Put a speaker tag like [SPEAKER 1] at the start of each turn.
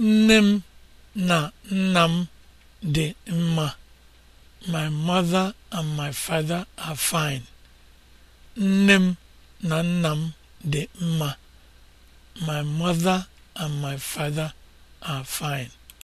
[SPEAKER 1] nne m na nna m dị mma my mother and my father are dị mma my mother and my father
[SPEAKER 2] are fine